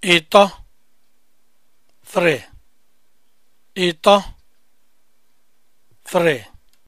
Ito three Ito three